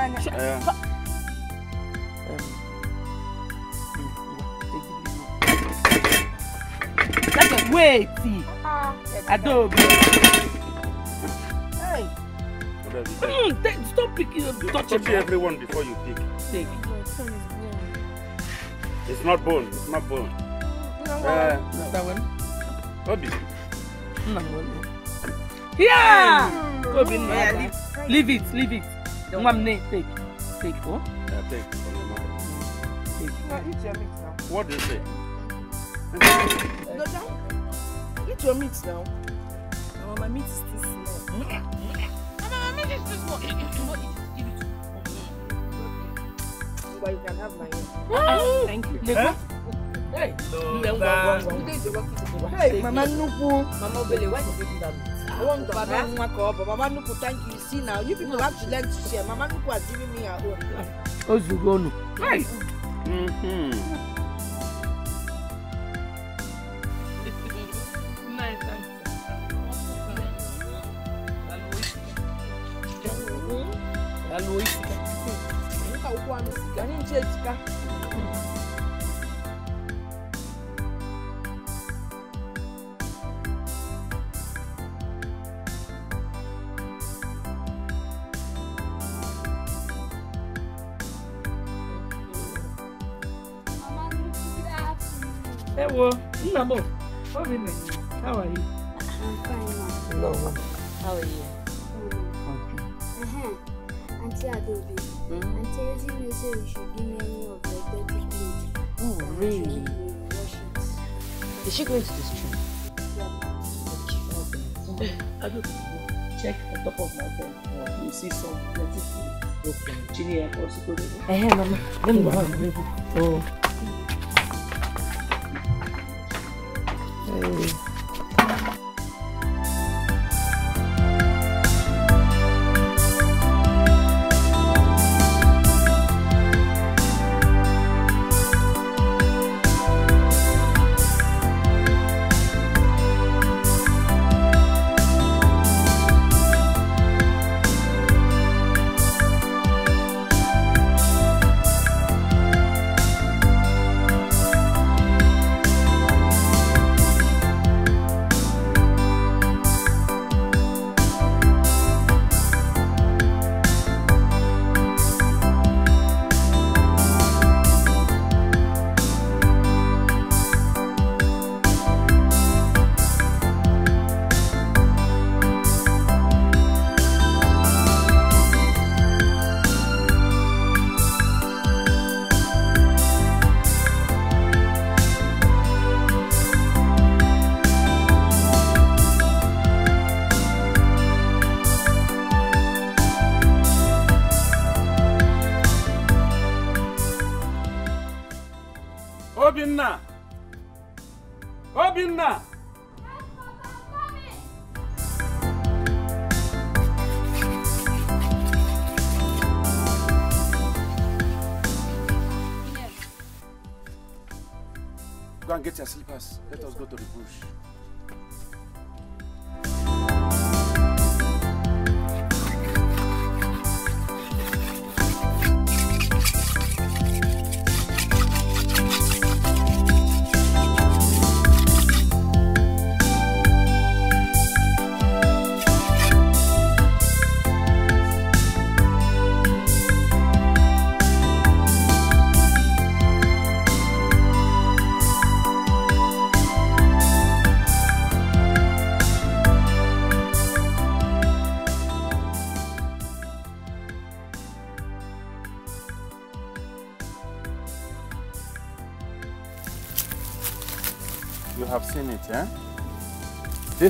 sana. Ayan. Wait! Uh, not Hey. Mm, take, stop picking up. Touch, touch everyone before you pick. Take. It's not bone. It's not bone. No, uh, no. That one. No. Yeah. Kobe. Hmm. Yeah, leave, leave it. Leave it. Don't want me take. Take, oh? Yeah, take. Take. What do you say? no, don't. Eat your meat now. No, my meat is too small. Mama, my meat is too small. Eat you can have my own. Thank you. Hey, mama, no, food. Mama why did you do that? Baba Nwako, but Mama Nuku, thank you. You see now, you people have to learn to share. Mama Nuku has given me her own. Ozugonu. Hi. Mm-hmm. 哎，妈妈，那你呢？嗯。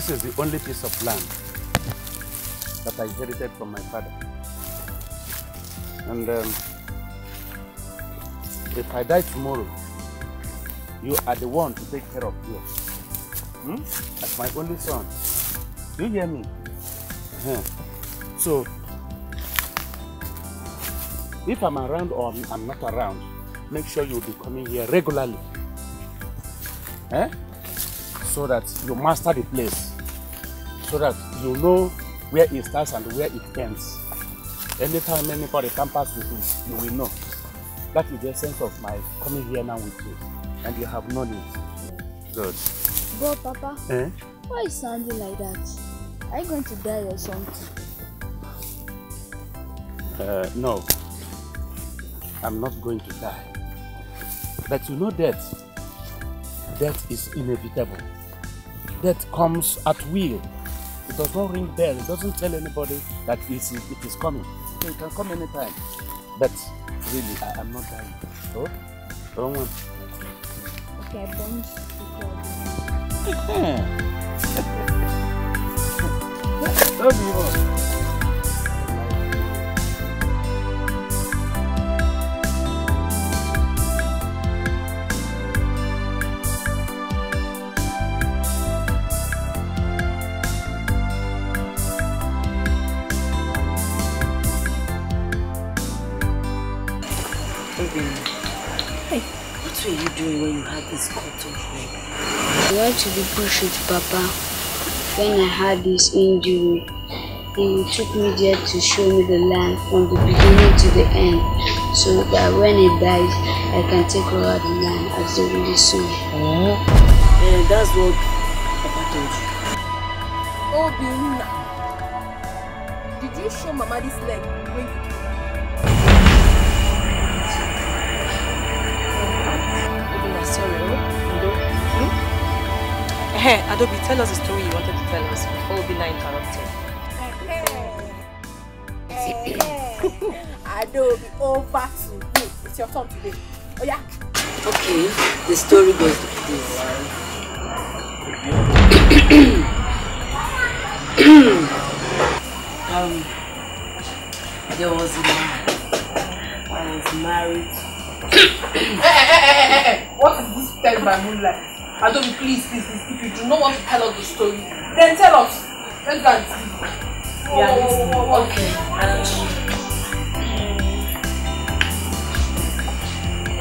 This is the only piece of land that I inherited from my father. And um, if I die tomorrow, you are the one to take care of you. Hmm? As my only son. You hear me? Uh -huh. So, if I'm around or I'm not around, make sure you'll be coming here regularly. Eh? So that you master the place so that you know where it starts and where it ends. Anytime anybody comes with you, you will know. That is the sense of my coming here now with you. And you have known it. Good. But Papa, eh? why is sounding like that? Are you going to die or something? Uh, no. I'm not going to die. But you know death. Death is inevitable. Death comes at will. It does not ring bell. It doesn't tell anybody that it is, it is coming. So it can come anytime. But really, I am not dying. So, wrong one. Okay, bombs. Love you all. had this cotton ring. I went to the bush with Papa when I had this injury. He took me there to show me the land from the beginning to the end so that when he dies, I can take over the land as the really soon. Oh. Eh, yeah, that's what Papa told you. Oh, Biuna, did you show Mama this leg when you Hey, Adobe, tell us the story you wanted to tell us before Obina interrupted. Adobe, over to you. It's your turn today. Oh yeah. Okay, the story goes like this. um, there was a man. I was married. hey, hey, hey, hey, hey, hey. What is this time by moonlight? Adomi, please, please, please, if you do not want to tell us the story, then tell us. Let's go and see. Yeah,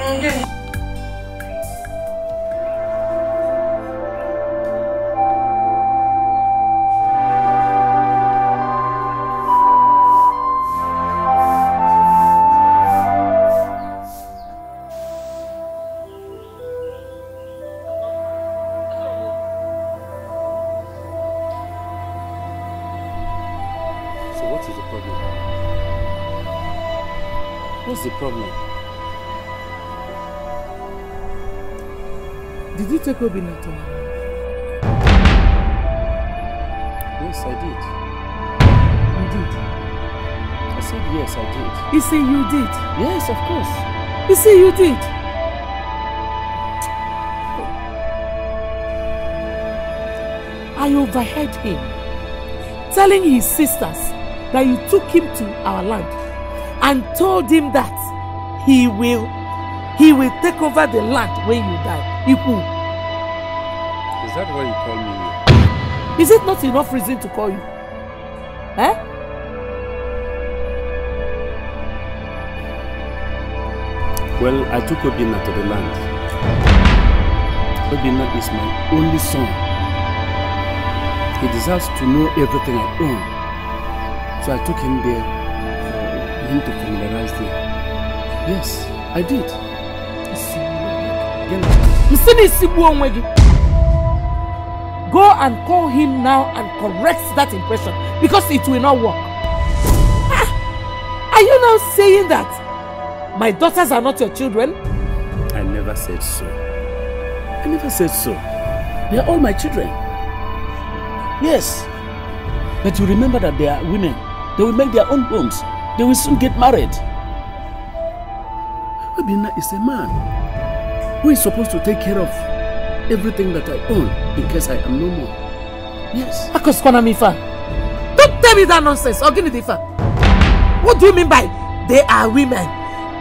okay. Um, mm. What's the problem? Did you take Obina to Yes, I did. You did? I said yes, I did. You say you did? Yes, of course. You say you did? I overheard him telling his sisters that you took him to our land and told him that he will he will take over the land when you die. Iku. Is that why you call me here? Is it not enough reason to call you? Eh? Well, I took Obinna to the land. Obinna is my only son. He deserves to know everything I own. So I took him there To familiarize there. Yes, I did. Go and call him now and correct that impression because it will not work. Ah, are you now saying that my daughters are not your children? I never said so. I never said so. They are all my children. Yes. But you remember that they are women. They will make their own homes. They will soon get married. Obina is a man who is supposed to take care of everything that I own in case I am no more. Yes. Akos Mifa, don't tell me that nonsense. Oginidifa, what do you mean by they are women?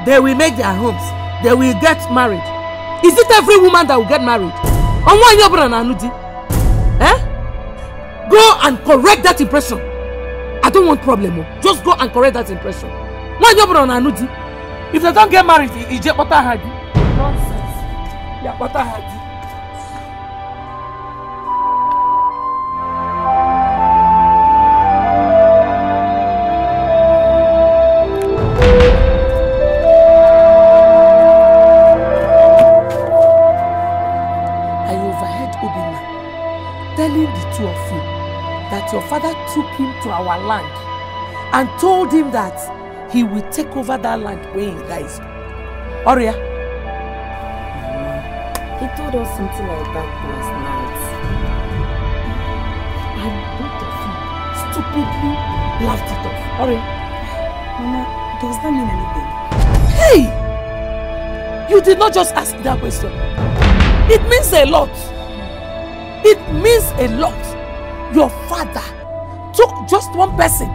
They will make their homes. They will get married. Is it every woman that will get married? On one year, Eh? Go and correct that impression want problem o just go and correct that impression nwaanyị ọ bụla na anụ di if they don get married ije kpọta ha di nonsense ya kpọta ha di I overheard Obinna telling the two of you that your father took him to our land and told him that he will take over that land when he dies. Oria. Mama, he told us something like that last night. And both of you stupidly laughed it off. Oria. Mama, does that mean anything? Hey! You did not just ask that question. It means a lot. It means a lot your father took just one person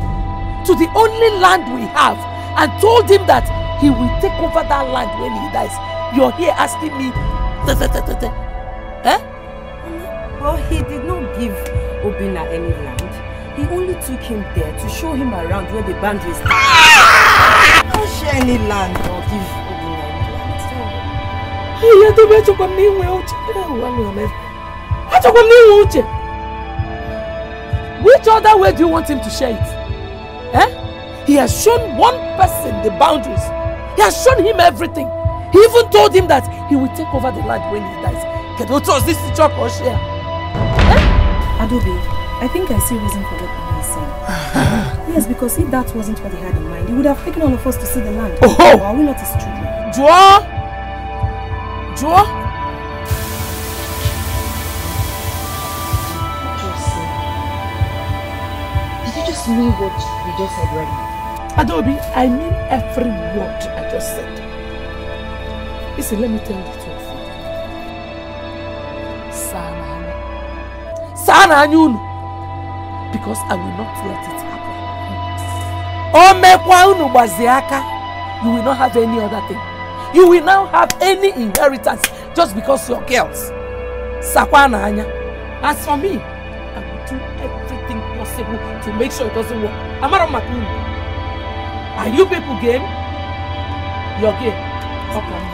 to the only land we have and told him that he will take over that land when he dies. You're here asking me. Da, da, da, da, da. Eh? But he did not give Obina any land. He only took him there to show him around where the boundaries are. Ah! Don't share any land or give Obina any land. Hey, oh, I don't want to come near my own. I don't want to come Which other way do you want him to share it? Eh? He has shown one person the boundaries. He has shown him everything. He even told him that he will take over the land when he dies. Can you trust this to or share? Eh? Adobe, I think I see reason for what he's saying. yes, because if that wasn't what he had in mind, he would have taken all of us to see the land. Oh! Or are we not his children? Joa! Joa! Ask what you just said right now. Adobe, I mean every word I just said. Listen, let me tell you the truth. Sana Anyun. Sana Because I will not let it happen. Omekwa unu gbaziaka. You will not have any other thing. You will not have any inheritance just because you're girls. Sakwa anya. As for me, possible to make sure it doesn't work. Am I not making Are you people game? You're game. Okay.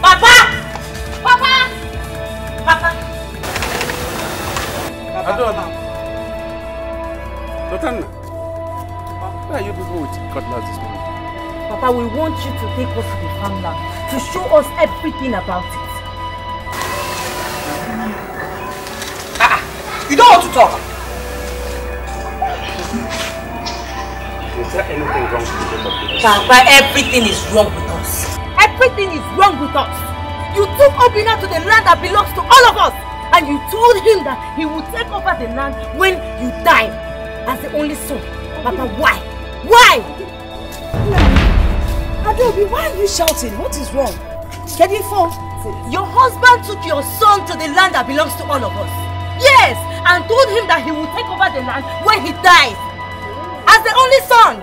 Papa! Papa! Papa! Papa! Adona! Dotana! Why are you people with cutlass this morning? Papa, we want you to take us to the farmland to show us everything about it. talk. Papa, everything is wrong with us. Everything is wrong with us. You took Obina to the land that belongs to all of us. And you told him that he would take over the land when you die. As the only son. Papa, why? Why? Adobe, why are you shouting? What is wrong? Can you fall? Your husband took your son to the land that belongs to all of us. Yes, and told him that he will take over the land when he dies. As the only son.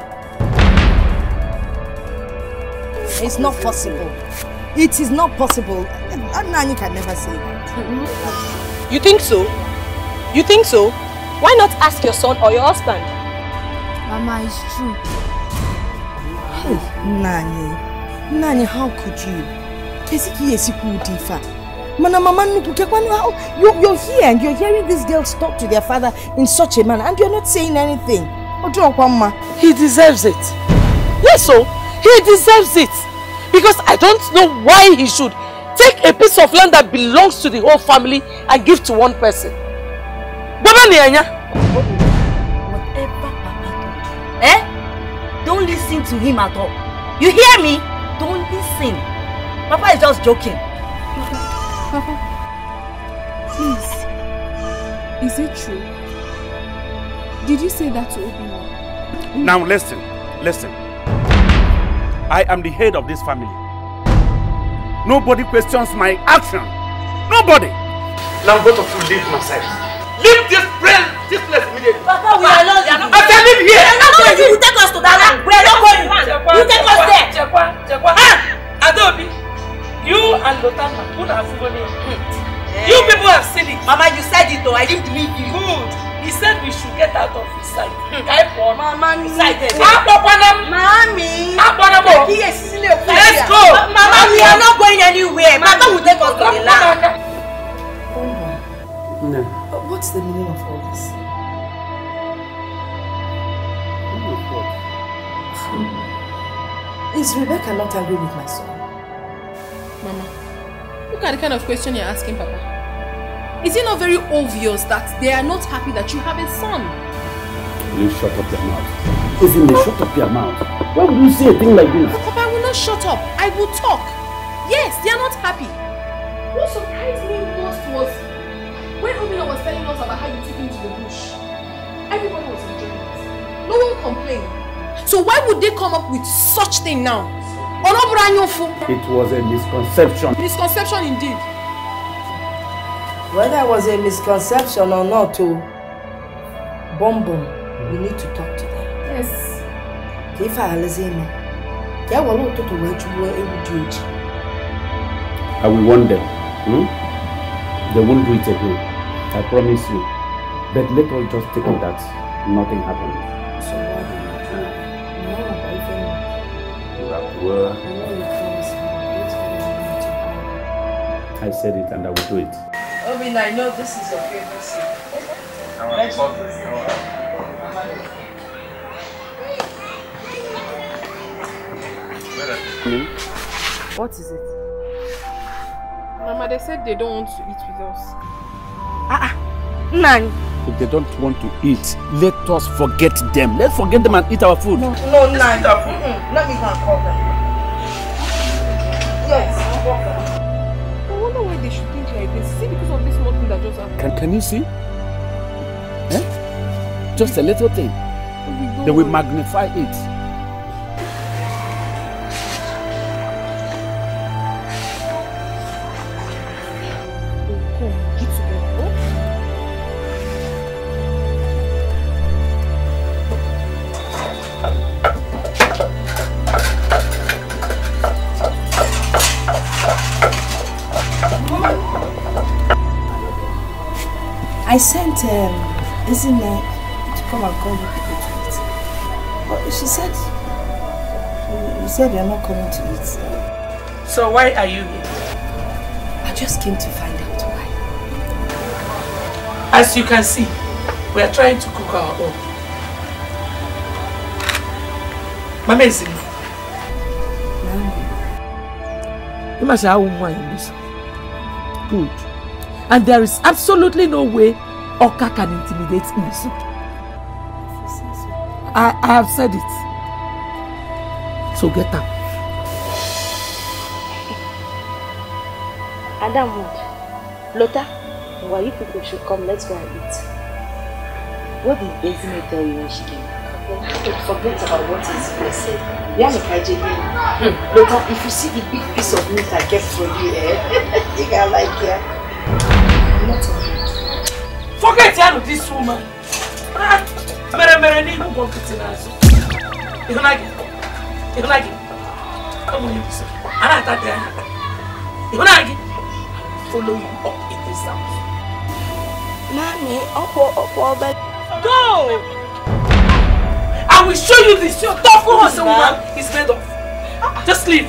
It's not possible. It is not possible. Nani can never say that. You think so? You think so? Why not ask your son or your husband? Mama, it's true. Nani. Nani, how could you? Kesiki yesiku udifa. Mana Mama Nuku, you, you're here and you're hearing these girls talk to their father in such a manner and you're not saying anything. He deserves it. Yes, so he deserves it. Because I don't know why he should take a piece of land that belongs to the whole family and give to one person. Baba Nianya. Whatever Papa eh? Don't listen to him at all. You hear me? Don't listen. Papa is just joking. Papa, please. Is it true? Did you say that to Obinna? Now listen, listen. I am the head of this family. Nobody questions my action. Nobody. Now both of you leave my side. Leave this place, this place immediately. Papa, we are not. I tell live here. We are not going. You take us to that land. We are not going. You take us there. Checkwa, checkwa. Ah, Adobi. You and Lotama, who have given him? Yeah. You people have seen it. Mama, you said it though. I didn't believe you. Good. He said we should get out of his sight. Hmm. Type one. Mama, excited. Mami. Let's go. Mama, we are not going anywhere. Mama will take us to the land. No. But what's the meaning of all this? Oh hmm. Is Rebecca not angry with my son? Mama, look at the kind of question you're asking Papa. Is it not very obvious that they are not happy that you have a son? Will you shut up your mouth? Isn't they shut up your mouth? Why would you say a thing like this? But Papa, I will not shut up. I will talk. Yes, they are not happy. What surprised me most was when Omina was telling us about how you took him to the bush. Everybody was enjoying it. No one complained. So why would they come up with such thing now? olóbùrà it was a misconception. misconception indeed. whether it was a misconception or not o oh, bombom we need to talk to them. yes. ka listen. alazi eme ka e were ụtụtụ wee jụgbuo ewu dị ojii. I will warn them. Hmm? They won't do it again. I promise you. But let us just take it that nothing happened. Well, I said it and I will do it. Obin, I know this is your favorite What is it? Mama, they said they don't want to eat with us. Ah, ah. Nang. If they don't want to eat, let us forget them. Let's forget them and eat our food. No, no, Mm -mm. Let me go and call them. Can, can you see? Eh? Just a little thing. Then we magnify it. said you're not coming to eat. So why are you here? I just came to find out why. As you can see, we are trying to cook our own. Mama is in. You must have one Good. And there is absolutely no way Oka can intimidate me. I, I have said it. So get up. Adam. why you people should come, let's go and eat. What did Bezine tell you when she came? Forget about what is blessed. Yannick hmm. if you see the big piece of meat I get for you, eh? Think I like it. Eh? Forget about this woman. Ihunagi, come on, you listen. I attack the Ihunagi, follow him up in this house. Mommy, Uncle, Uncle, but go. I will show you this. Your tough woman, woman, is made of. Just leave.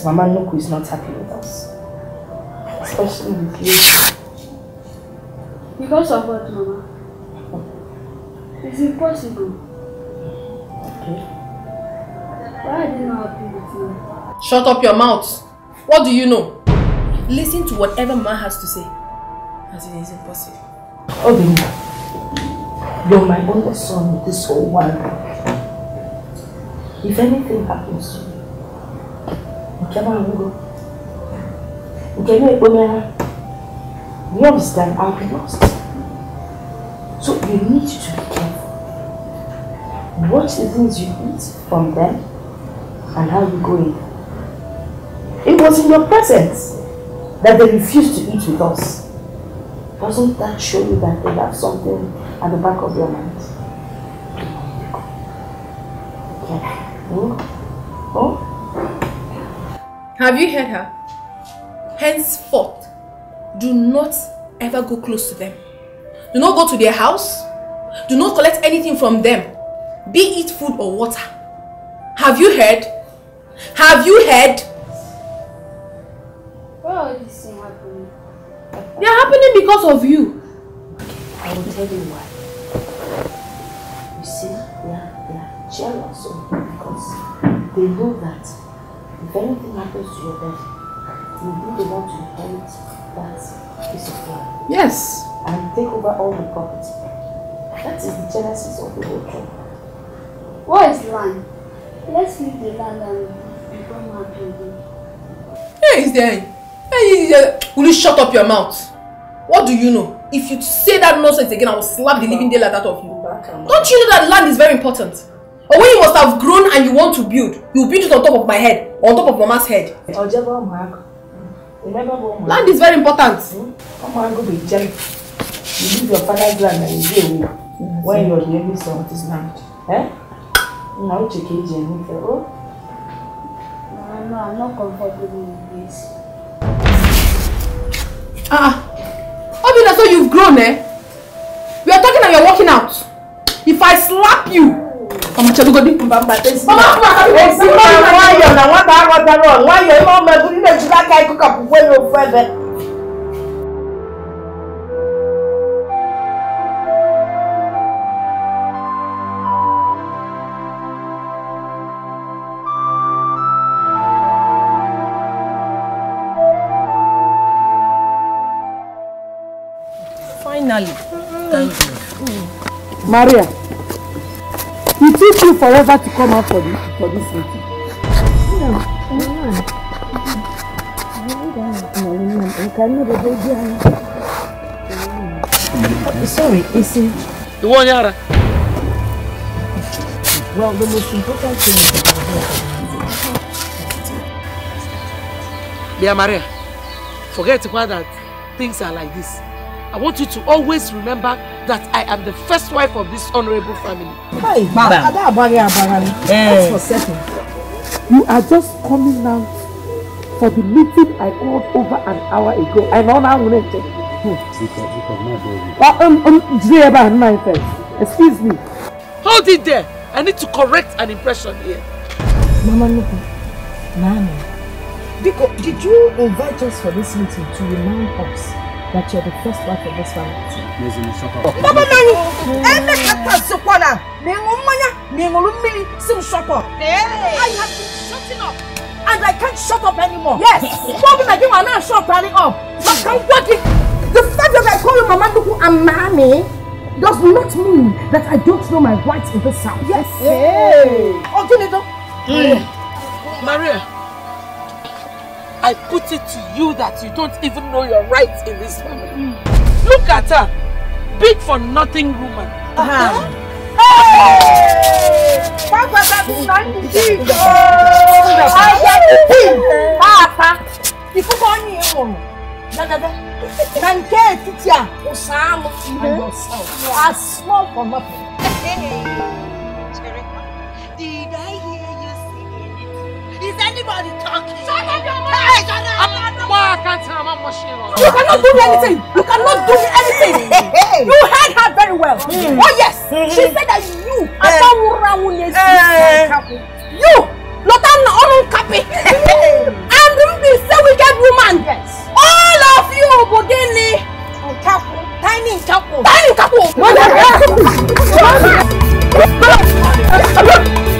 because Mama Nuku is not happy with us. Especially with you. Because of what, Mama? It's impossible. Okay. Why are you not happy with me? Shut up your mouth. What do you know? Listen to whatever Mama has to say. As it is impossible. Obinna, you're my only son in this whole world. If anything happens to you, you understand I'll be lost so you need to be careful watch the things you eat from them and how you go in it was in your presence that they refused to eat with us doesn't that show you that they have something at the back of their minds? Okay. Oh? Have you heard her? Henceforth, do not ever go close to them. Do not go to their house. Do not collect anything from them, be it food or water. Have you heard? Have you heard? Why are these things happening? They are happening because of you. Okay, I will tell you why. You see, they are, they are jealous of you because they know that if anything happens to your body, you be the one to inherit that piece of land. Yes. And take over all the property. That is the genesis of the whole thing. What is land? Let's leave the land and become happy again. Hey, is there? Hey, there. Will you shut up your mouth? What do you know? If you say that nonsense again, I will slap the living daylight out of you. Don't you know that land is very important? Or when you must have grown and you want to build, you build it on top of my head, on top of mama's head. Land is very important. Hmm? be You leave your father's land and you go when you're the only son of this land. Eh? Now check it and you oh. No, no, I'm not comfortable with this. Ah, Obina, ah. so you've grown, eh? We are talking and are working out. If I slap you, ọmọ tí olúgbọ́n bí. bàbá tẹ̀sí. ọmọ tí wàá kọ́ ẹ̀sìn mọ́ ìwọ̀n ayọ̀ náà wọ́n bá rọ̀tọ̀ rọ̀ wọ́n ayọ̀ ẹ̀ máa mẹ́bù nílẹ̀ jù láká ikú kàpù wọ́n yóò fẹ́ bẹ́ẹ̀. Finally, thank you. Maria will teach you forever to come out for this, for this meeting. Sorry, Isi. The one yara. Well, the most important thing is Dear Maria, forget why that things are like this. I want you to always remember that I am the first wife of this honorable family. Hey, Hi, madam. That's for certain. You are just coming now for the meeting I called over an hour ago. I know now when hmm. oh, um, um, I check. Excuse me. Hold it there. I need to correct an impression here. Mama, look. Nani. Did you invite us for this meeting to remind us that you're the first wife of this family. I have been shutting up. And I can't shut up anymore. Yes. Papa Manu, you are not shut up. But I'm working. The fact that I call you Mama Nuku and Mami does not mean that I don't know my rights in this house. Yes. Hey. Oh, hmm. Maria. I put it to you that you don't even know your rights in this family. Mm. Look at her. Big for nothing woman. Uh -huh. Hey! Papa, that's not it. Oh, I got it. Papa, you put on your own. Da, da, da. Na nke etiti a, ụsa anụ and yourself are small for nothing. Is anybody talking? Shut up, your mouth! Hey, shut up! Why I can't tell my machine You cannot do me anything! You cannot do me anything! you heard her very well! Mm. Oh yes! Hmm. she said that you, Asawura Wunesi, you, Lotan Orun Kapi, and Ruby, say wicked woman! Yes. All of you, Bodini! Nkaku! Tiny Nkaku! Tiny Nkaku! Tiny Nkaku!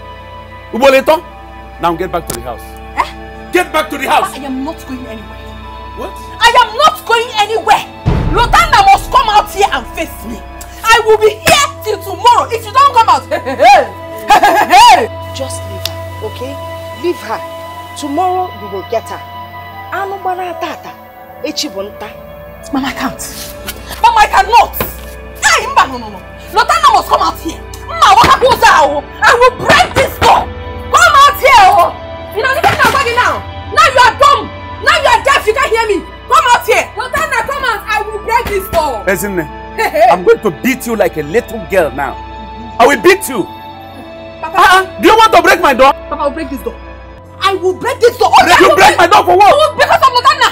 Uboleton, now get back to the house. Eh? Get back to the house. I am not going anywhere. What? I am not going anywhere. Lotanda must come out here and face me. I will be here till tomorrow if you don't come out. Just leave her, okay? Leave her. Tomorrow we will get her. Anumbana tata. Echibunta. Mama, I can't. Mama, I cannot. Hey, no, no, no. Lotanda must come out here. Ma, what I will break this here, oh. You know, look at nobody now. Now you are dumb. Now you are deaf. You can't hear me. Come out here. Rosanna, come out. I will break this door. Listen, eh? I'm going to beat you like a little girl now. I will beat you. Papa, uh-uh. do you want to break my door? Papa, I will break this door. I will break this door. Oh, break, you break my door for what? Because of Rosanna.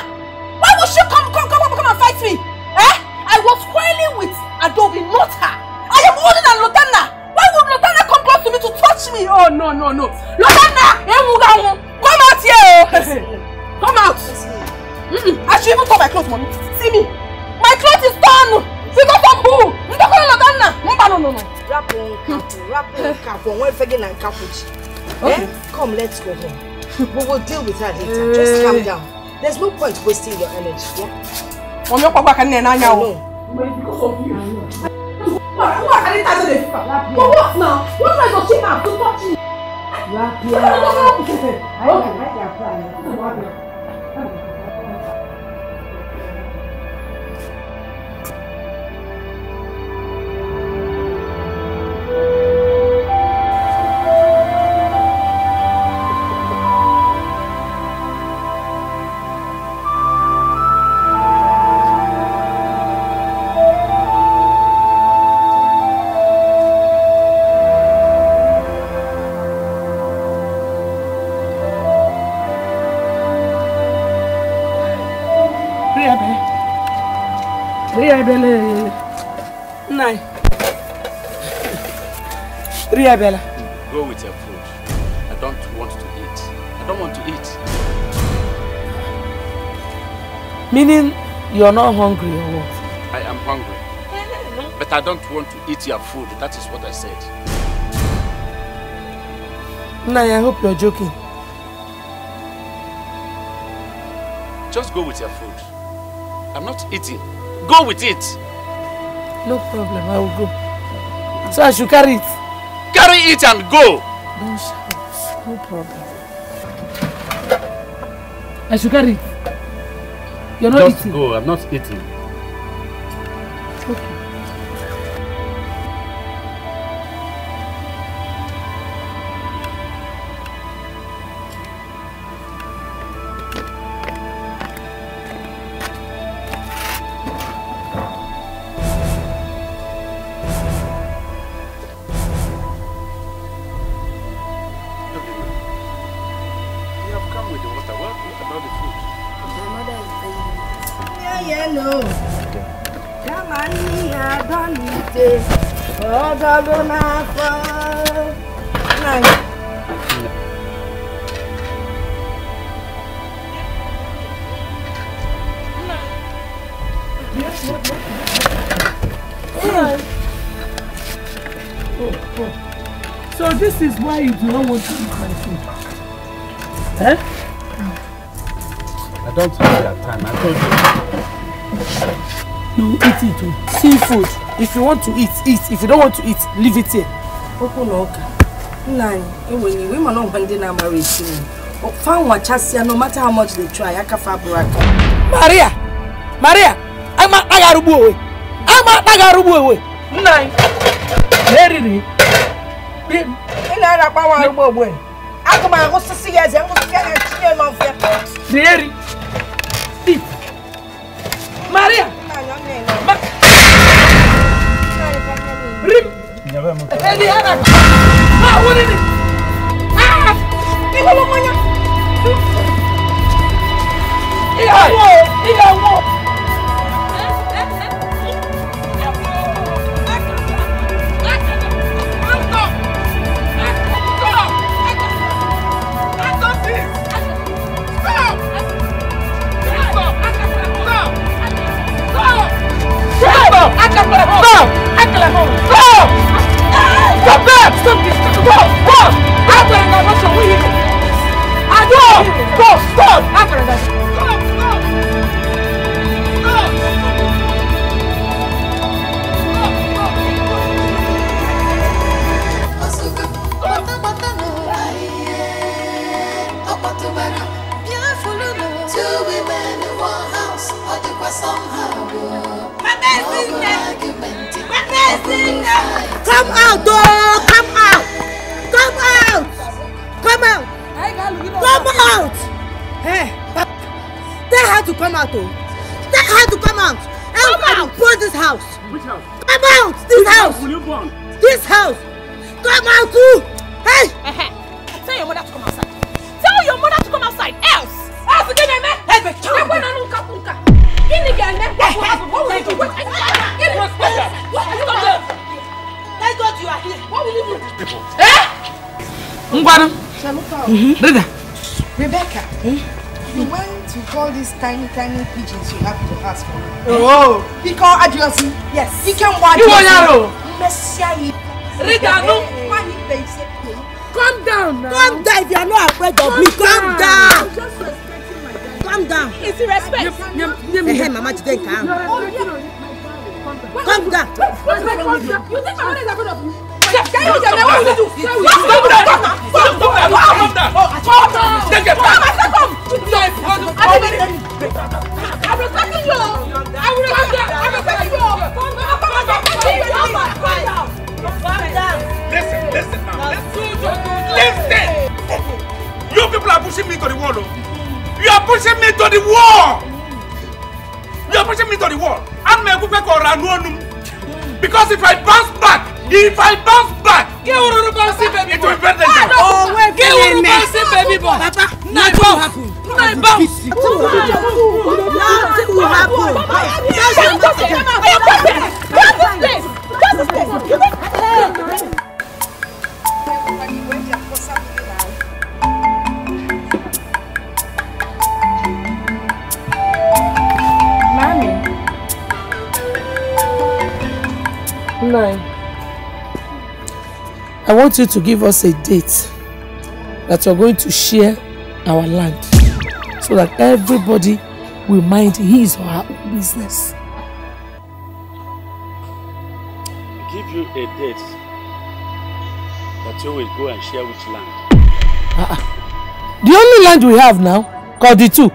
Why would she come, come, come, come, and fight me? Eh? I was quarreling with Adobe, not her. I am older than Lotana. Why would Lotana come close to me to touch me? Oh, no, no, no. Lotana ewu wọn come out here o come out I should even call my cloth mami see me my cloth is torn figure from bull ndokoro na ganna mba no no no. wrap on cap wrap on cap on wen fege na nkapuchi eh come let's go home we will deal with her later just calm down there's no point wasting your energy. wọ́n mi ò pàpà kan ní ẹ̀ náà o. What? What? I didn't touch the But what now? What am I touching now? To touch you? Lafiya. Ai, ai, ai, ai. Go with your food. I don't want to eat. I don't want to eat. Meaning you're not hungry or what? I am hungry. But I don't want to eat your food. That is what I said. Nai, I hope you're joking. Just go with your food. I'm not eating. Go with it. No problem, I will go. So I should carry it. Carry it and go. Don't shout. No problem. I should carry it. You're not Just eating. go. I'm not eating. you want to eat eat if you don't want to eat leave it here. okwu na ụka nna anyị enwere iwe ịma na ọgwa ndị na-amara esi nri fa nwachasịa no matter how much they try aka fa bụrụ aka maria maria ama akpa ga-arụgbu onwe ama akpa ga-arụgbu onwe nna anyị na-eriri ị na-ara nwa arụgbu ogbe akụma ahụ sisi ya eze ngwụsịsị ya na chinye nọ mfe eri the other. tiny, tiny pigeons you have to ask for. Oh! Because oh. Adiosi. Yes. You can watch You want Yaro? Messiah. Rita, no. Calm down now. Calm down if you are not afraid of me. Calm down. Calm down. It's respect. Hey, Mama, today calm. Calm down. You think my mother is afraid of you? Can you tell me what you do? Stop that! to the wall. You are pushing me to the wall. I'm a good or Because if I bounce back, if I bounce back. Get Ururu Bouncy baby boy. It will be better oh, than baby boy. Papa, nothing will happen. Nothing will happen. Nothing will happen. Nothing will happen. I want you to give us a date that you're going to share our land so that everybody will mind his or her own business. Give you a date that you will go and share which land? Uh -uh. The only land we have now, called the two.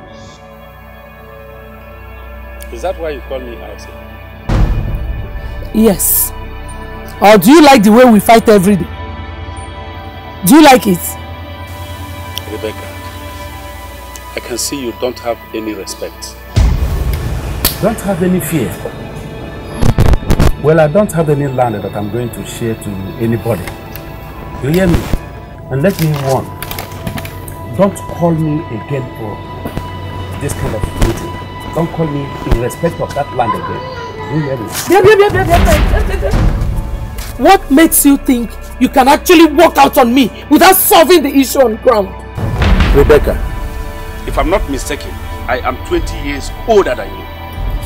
Is that why you call me Isaac? Yes. Or do you like the way we fight every day? Do you like it? Rebecca, I can see you don't have any respect. Don't have any fear. Well, I don't have any land that I'm going to share to anybody. You hear me? And let me warn. Don't call me again for this kind of meeting. Don't call me in respect of that land again. you hear me? What makes you think you can actually walk out on me without solving the issue on ground. Rebecca, if I'm not mistaken, I am 20 years older than you.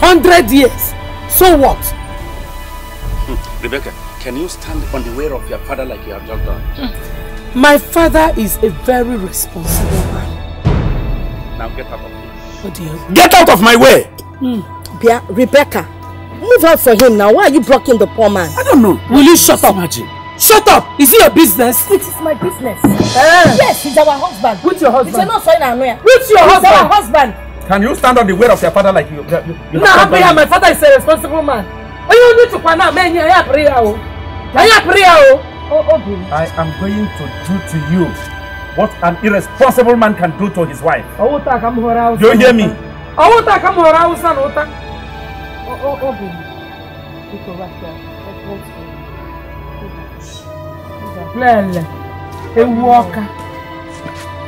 100 years? So what? Hmm, Rebecca, can you stand on the way of your father like you have just done? Hmm. My father is a very responsible man. Now get out of here. Oh dear. Get out of my way! Hmm. Rebecca, move out for him now. Why are you blocking the poor man? I don't know. Will you shut up? Imagine. Shut up! Is it your business? It is my business. Uh, yes, he's our husband. Who's your husband? It's not so in Who's your he's husband? our husband. Can you stand on the word of your father like you? you no, I'm here. My father is a responsible man. Oh, you need to find out. Man, I pray. Oh. oh, oh. oh I am going to do to you what an irresponsible man can do to his wife. Do You hear me? Oh, oh, oh, lele ewu ọka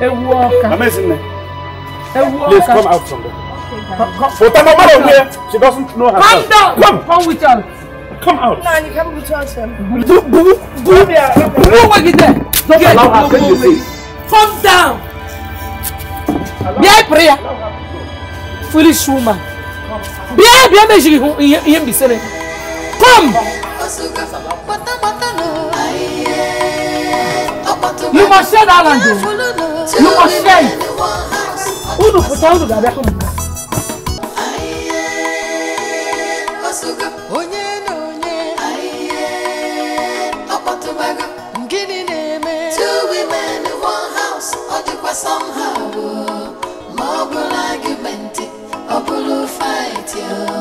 ewu ọka ewu ọka come out from there. But I'm She doesn't know herself. Come down. Come. Come with us. Come out. No, you can't with us. Do do do. Go work it there. Don't Get allow her to you see. Come down. Bịa prayer. Foolish woman. Bịa bịa mejiri ihe mbisere. Come. Come. You must share that land. You must share it. Unu kuta unu gabe kunu. Two women in one house, or do somehow. Oh. More argument, or blue fight, yeah.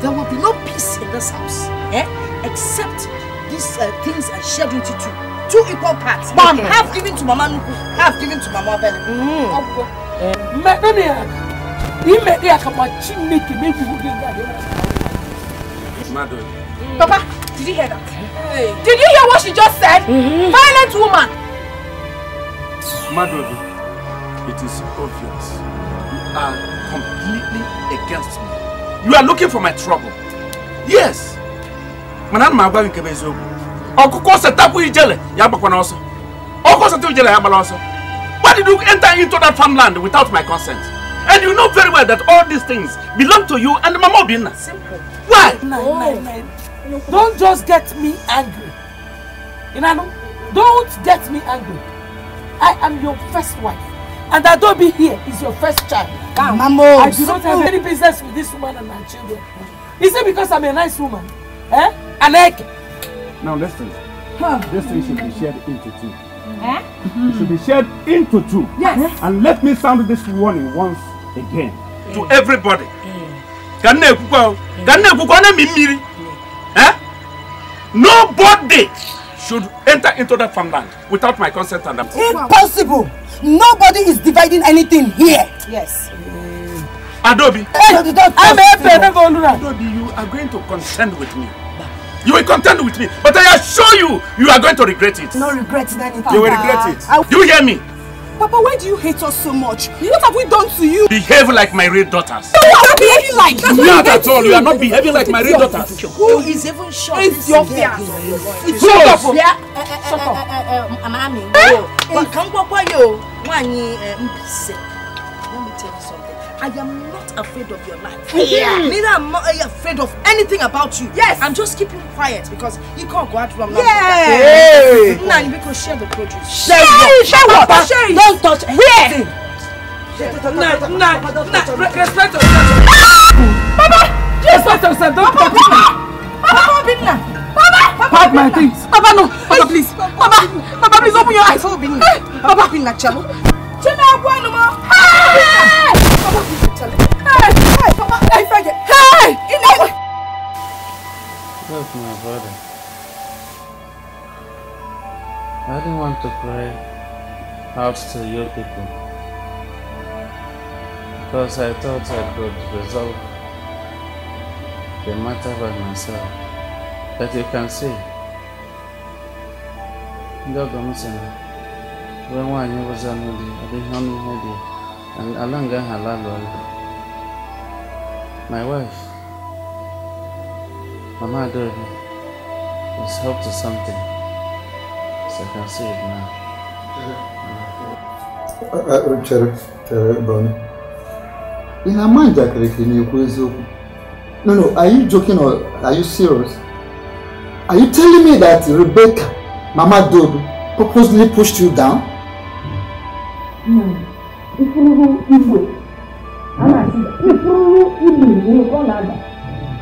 There will be no peace in this house, eh? Except these uh, things are shared with two. Two equal parts. Mom, okay. half given to Mama Nuku, half given to Mama Bella. Mm. Eh, Madam, you made me a cup of chimney to make you Madam. Papa, Did you hear that? Hey. Did you hear what she just said? Mm-hmm. Violent woman! Madobi, it is obvious. You are completely against me. You are looking for my trouble. Yes! Mana ma agwa nke eziokwu. Ọkụkọ setapụ ijele ya agbakwana ọsọ. Ọkụkọ setapụ ijele ya agbala ọsọ. Why did you enter into that farmland without my consent? And you know very well that all these things belong to you and Mama Obinna. Simple. Why? My, my, my don't just get me angry you know. don't get me angry i am your first wife and adobe here is your first child mamo i do not have any business with this woman and her children is it because i'm a nice woman eh aneke. now listen huh. this thing should be shared into two. Eh? It should be shared into two. Yes. And let me sound this warning once again. To eh. everybody. Ka eh. nne ekwukwa o. Ka nne mmiri. Nobody should enter into that farmland without my consent and approval. Impossible! Nobody is dividing anything here. Yes. Adobe. Adobe, you are going to contend with me. You will contend with me, but I assure you, you are going to regret it. No regrets. Danny. You will regret it. Do You hear me? Papa, why do you hate us so much? What have we done to you? Behave like my real daughters. No, what are we behaving like? That's not at all. You are not behaving like my real daughters. Who is even sure? It's your fear. It's your fear. Shut up. Mami, you can't go for you. Let me tell you something. I am afraid of your life. Yeah. Neither am I afraid of anything about you. Yes. I'm just keeping quiet because you can't go out wrong. now. Yeah. Now you because share the produce. Share what? Share what? Share it. Don't touch anything. Nah, nah, nah. Respect yourself. Papa. Respect yourself. Don't touch me. Papa, Papa, Papa, Papa, Papa, Papa, Papa, Papa, Papa, please. Papa, Papa, please open your eyes. Papa, Papa, Papa, Papa, Papa, Papa, Papa, Papa, Papa, Papa, Hey! Look, my brother. I didn't want to play out to your people. Because I thought I could resolve the matter by myself. But you can see, ndị ọgọ m sị na wee nwaanyị ụzọ anụ dị ọ dịghị ọnụ and dị ala nga ahụ alalụọla My wife, Mama Adorni, is helped to something. So I can see it now. Uh, uh, chere chere Bonnie. Ị na-ama njakịrị ka ị na-ekwu eziokwu? No, no, are you joking or are you serious? Are you telling me that Rebecca, Mama Dobe, purposely pushed you down? No. Ifuluhu Igwe. A I'm not the following evening we will call Ada.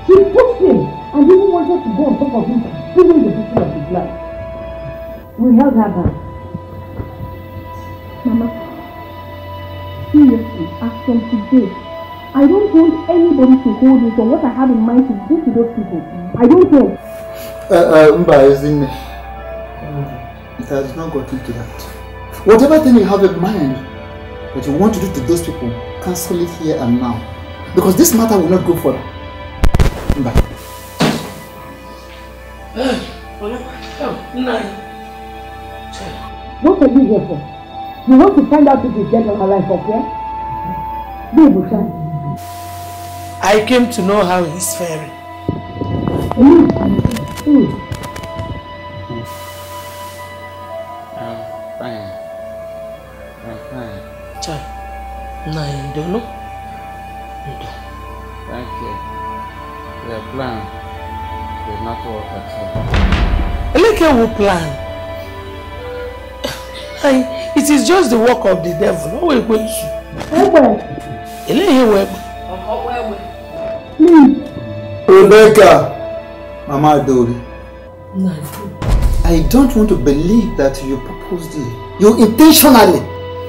She pushed him and even wanted to go on top of him, stealing the picture of his life. We held her back. Mama, seriously, as from today, I don't want anybody to hold me from what I have in mind to do to those people. I don't care. Uh, uh, Mba, as it has not gotten to that. Whatever thing you have in mind that you want to do to those people, cancel it here and now. Because this matter will not go further. Bye. What are you here for? You want to find out if this dead or alive, okay? Baby, son. I came to know how he's faring. Mm. Mm. fine. fine. Child, no, don't plan did not work at all. Eleke plan. I, it is just the work of the devil. No way going to. Eleke will. Hmm. Rebecca, Mama Adori. No. I don't want to believe that you purposely, you intentionally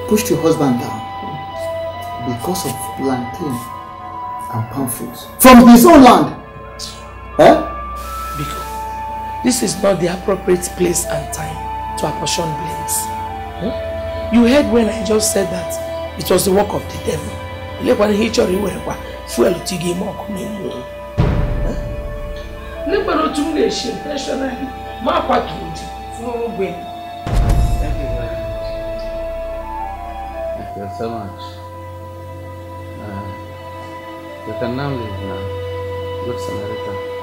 pushed your husband down because of plantain and palm fruits from his own land. Huh? Because this is not the appropriate place and time to apportion blames. Hmm? You heard when I just said that it was the work of the devil. Hmm? You fuel to give more communion. Liberal otu m na-esi intentionally ma akwaturu di fún ogbe. Thank you so much. Uh, you can now leave now. Good Samaritan.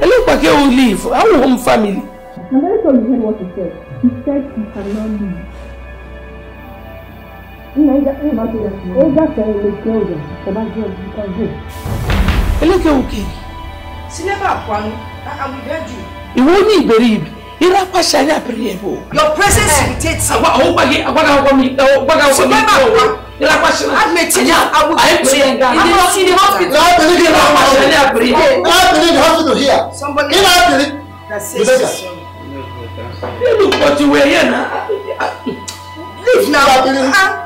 Elekpake will leave. I will home family. I'm very sure you heard what he said. He said he cannot leave. Eleke oke. Sineba kwanu, I will beg you. Ìwọ ni ìbẹ̀rẹ̀ ibi your presence irritates me. awa awo gbage agbada awo mi gbada awo mi awo irapa hyɛn apiri yɛ bo. ayi piri yɛ nga. ayi piri yɛ nga. ayi piri yɛ nga. irapa hyɛn here. somebody ina apiri. ilu kɔti leave now.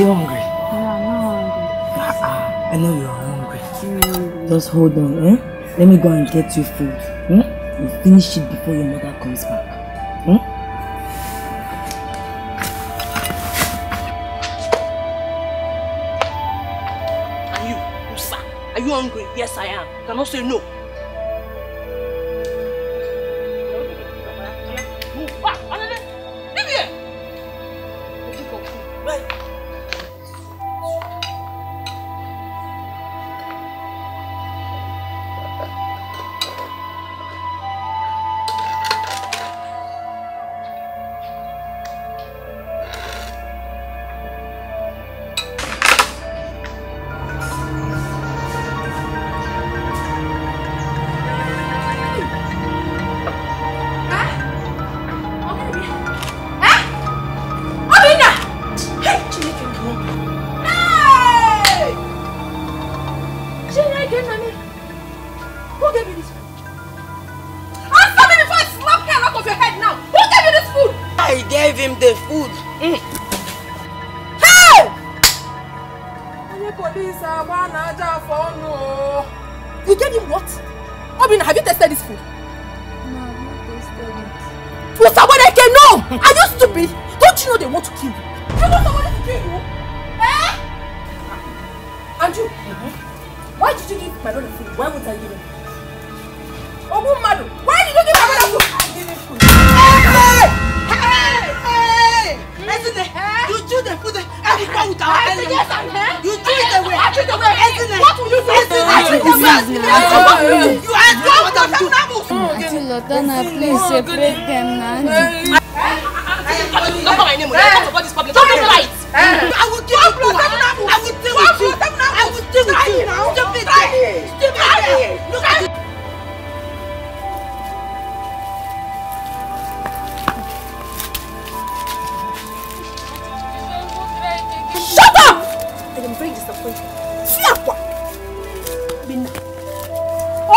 you hungry? No, I'm not hungry. Ah, ah, I know you are hungry. Mm. Just hold on, eh? Let me go and get you food. Hmm? You finish it before your mother comes back. Hmm? Are you, Musa? Are you hungry? Yes, I am. You cannot say no.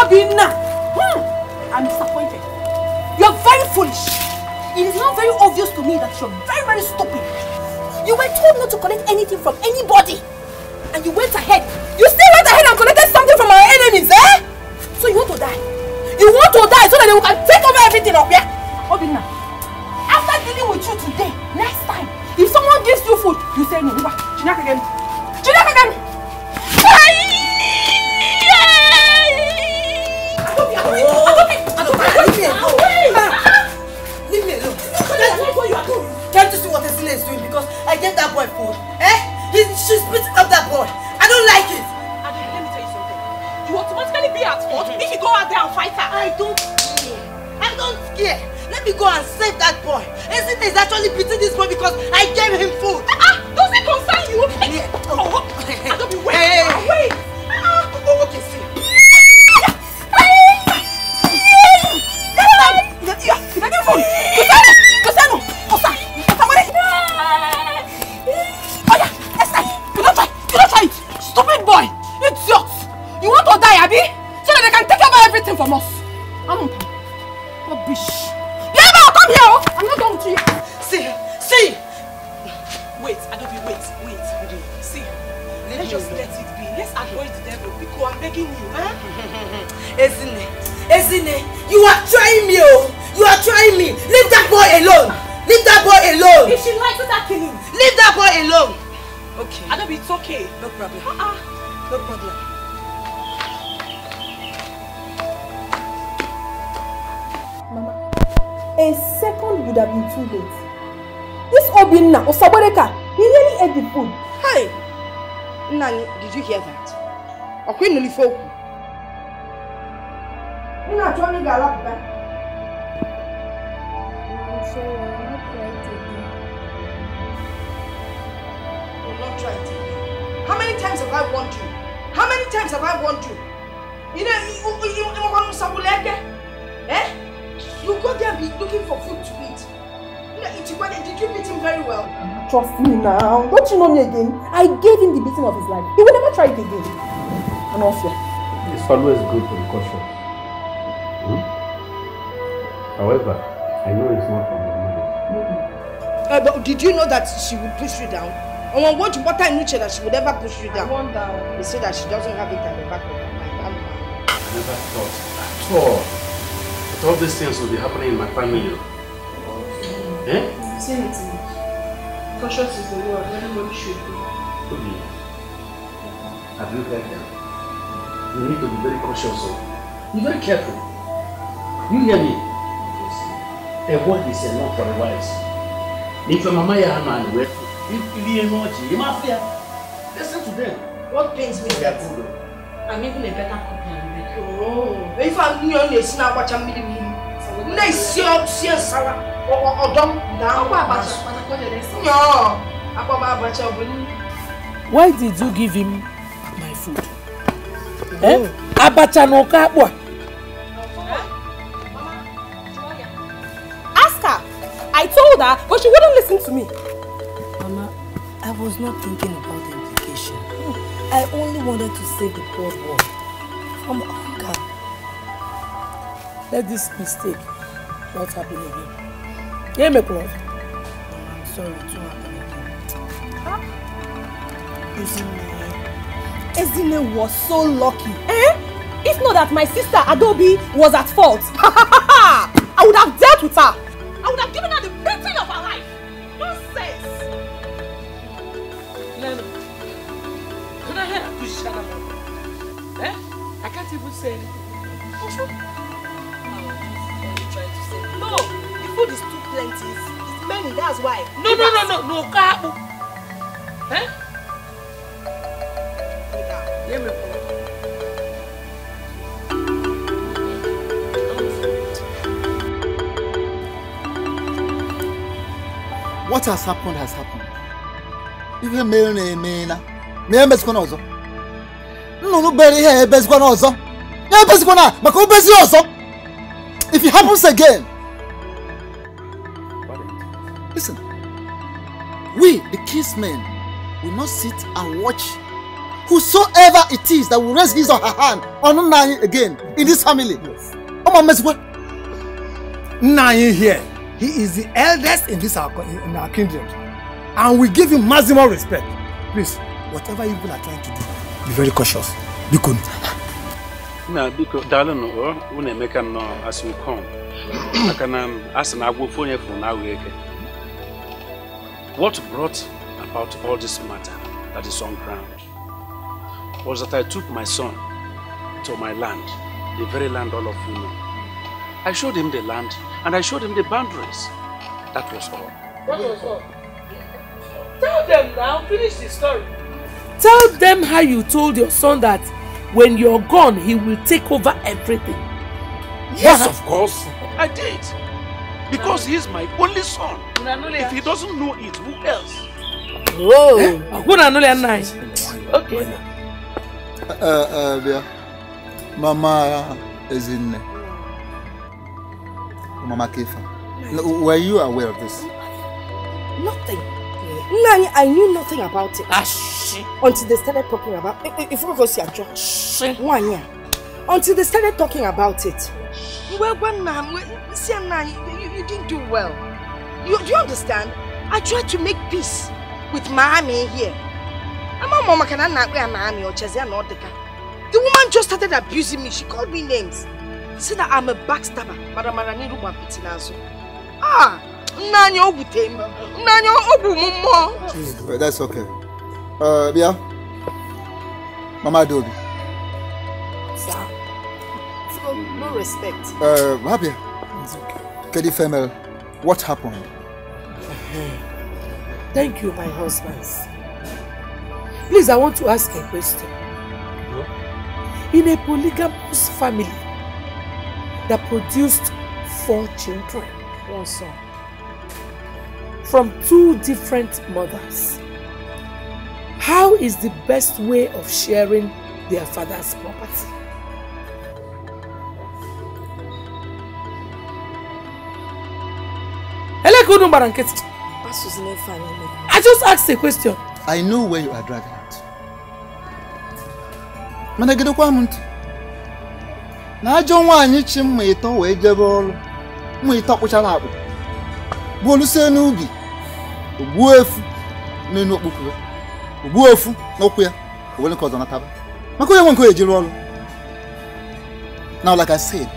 Obinna, hmm, I'm disappointed. You're very foolish. It is now very obvious to me that you're very, very stupid. You were told not to collect anything from anybody. And you went ahead. You still went ahead and collected something from our enemies, eh? So you want to die. You want to die so that they can take over everything up, yeah? Obinna, after dealing with you today, next time, if someone gives you food, you say no. you Chinaka again. that boy for? Eh? He, she's beating up that boy. I don't like it. Adele, let me tell you something. You automatically be at fault if you go out there and fight her. I don't care. I don't care. Let me go and save that boy. Isn't is actually beating this boy because I gave him food. Ah, uh-uh, does it concern you? ị na-achọ onye ga How many times have I warned you? How many times have I warned you? You know, you, you, you, eh? you go there be looking for food to eat. You know, did you beat him very well? Trust me now. Don't you know me again? I gave him the beating of his life. He will never try it again. It's always good to be cautious. Hmm? However, I know it's not from the money. Mm -hmm. uh, eh, but did you know that she will push you down? I want what water in nature that she would ever push you down. I wonder. They say that she doesn't have it at the back of her mind. i never thought at all that all these things will be happening in my family. Okay. Eh? Say Cautious is the word. Everybody should be. Have you heard that? you need to be very cautious o oh. be very careful you hear me a word is enough for the wise if your mama ya ama and well if you hear much you ma fear listen to them what pains me that oh. i'm even a better than you. oh if i'm new on esi na agbacha mmiri mmiri na esi ọtụsi nsala ọdọ na akwa abacha nyọọ akwa abacha ọ bụ nri why did you give him my food abacha ask her i told her but she wouldn't listen to me mama i was not thinking about the implication i only wanted to save the poor boy from hunger let this mistake not happen again yeah me come i'm sorry it won't happen again huh? Isn't Ezine was so lucky. Eh? If not that my sister Adobe was at fault, I would have dealt with her. I would have given her the beating of her life. Nonsense. Lena, can I help you shut up? Eh? I can't even say anything. What's No, the food is too plenty. It's many, that's why. No, no, no, no, no, no, no, no, no, no, no, no, no, What has happened has happened. Ihe mere na emeela na emezikwana ọzọ. Nnụnụ bere ihe ebezikwana ọzọ. Ya ebezikwana maka obezi ọzọ. If it happens again. Listen, we the kiss men will not sit and watch whosoever it is that will raise his or her hand on Nahi again in this family. Yes. Oh, my here, he is the eldest in this our, in our kingdom. And we give him maximum respect. Please, whatever you people are trying to do, be very cautious. Be good. Now, because darling, when I make him as you come, I can ask an agwo phone for now. What brought about all this matter that is on ground? was that I took my son to my land, the very land all of you know. I showed him the land and I showed him the boundaries. That was all. That was all. Tell them now, finish the story. Tell them how you told your son that when you're gone, he will take over everything. Yes, of course. I did. Because he's my only son. If he doesn't know it, who else? Oh, eh? okay. Eh, eh, bịa mama in. mama kefa were you aware of this nothing Nani, I knew nothing about it Ashi. Ah, until they started talking about it. Eh, if we go see a church, one year, until they started talking about it. Well, well, Nam, see, you, you didn't do well. You, do you understand? I tried to make peace with Miami here. ama mọ maka na nna akpa ya na amị the woman just started abusing me she called me names said that I'm a backstabber mara mara n'iru gbapụti ah nna anyị o gwute m that's okay uh, Bia, mama adobi sir no respect uh, Rabia. It's okay. Kedi Femel, what happened? Thank you, my husbands. Please, I want to ask a question. In a polygamous family that produced four children, one son, from two different mothers, how is the best way of sharing their father's property? I just asked a question. I know where you are driving at. mana gedekwa m ntị na ajọ nwaanyị chi mma ịtọ wee jebe ọrụ mma ịtọ kpụchara akpụ gbuolusie n'ubi ogbuo efu n'elu okpukpu o ogbuo efu n'ụkwụ ya owere nke ọzọ nataba maka onye nwe nke ejiri ọrụ Now, like I said,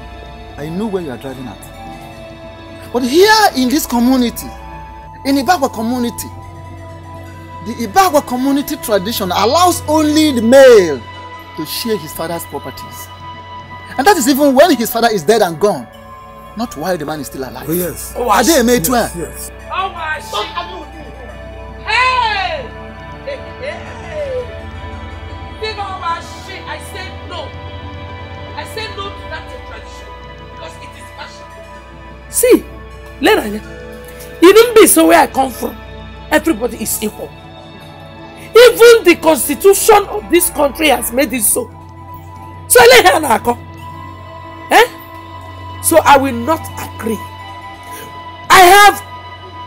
I know where you are driving at. But here in this community, in the community, The Ibagwa community tradition allows only the male to share his father's properties. And that is even when his father is dead and gone, not while the man is still alive. Oh, yes. Oh, Are they made yes, well? Yes. Oh, I see. Hey! Hey! Think my shit. I said no. I said no to that tradition because it is fashion. See, Leranya, even be so where I come from, everybody is equal. even the constitution of this country has made it so so eléyìí àná àkọ eh so i will not agree i have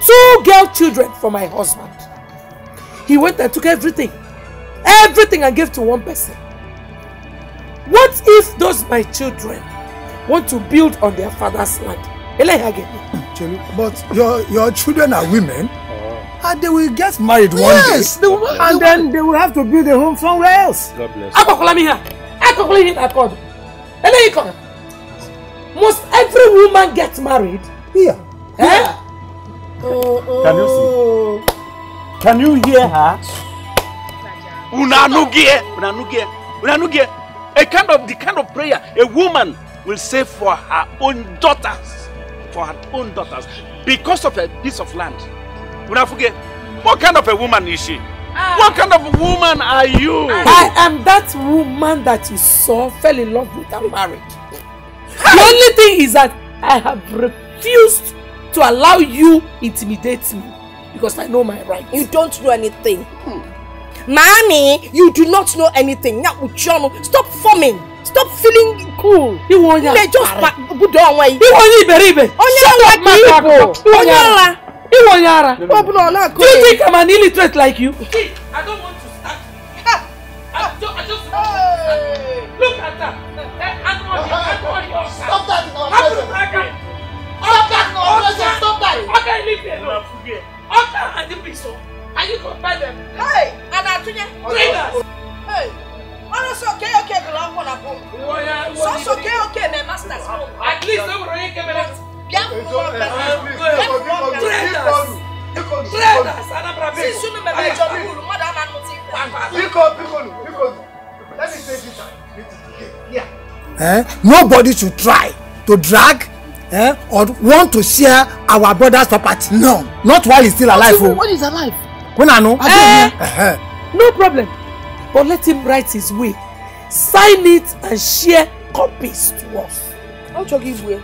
two girl children for my husband he went and took everything everything I gave to one person what if those my children want to build on their father's land eléyìí àgẹ̀mí. but your your children are women. And they will get married one yes, day. They and they then they will have to build a home somewhere else. God bless you. Akokulami here. Akokulami here at God. Eleikon. Must every woman get married? Here. Yeah. Eh? Yeah. Oh, Can you see? Oh. Can you hear her? Unanugie. Unanugie. Unanugie. A kind of the kind of prayer a woman will say for her own daughters. For her own daughters. Because of a piece of land. Unafuge, what kind of a woman is she? Ah. What kind of woman are you? Ah. I am that woman that you saw fell in love with and married. The only thing is that I have refused to allow you intimidate me because I know my rights. You don't know anything. Hmm. Mommy, you do not know anything. Now, Uchono, stop forming. Stop feeling cool. Iwonya. Just put down where you. Iwonya iberibe. Shut up, my people. Onyola. Iwo Yara. Do you eh? think I'm an illiterate like you? I don't want to start I just, I just want to start. Look at that. I'm eh, eh, on your, your Stop that in our presence. Stop that in our presence. Stop that. Okay, leave me alone. Okay, and the bishop. Oh. And you go buy them. Hey, and I tell Hey. Ọ̀rọ̀ sọ kẹ́ ọ̀kẹ́ gbọ́dọ̀ wọ́n na bọ̀. Sọ sọ kẹ́ ọ̀kẹ́ na masters. At least ẹ wúrọ̀ yín kẹ́mẹ́rẹ́ biafra traitors traitors Nobody should try to drag eh, or want to share our brother's property. No, not while he's still alive. Oh. is alive. When I know. Eh, uh-huh. No problem. But let him write his will. Sign it and share copies to us. I'll talk him well.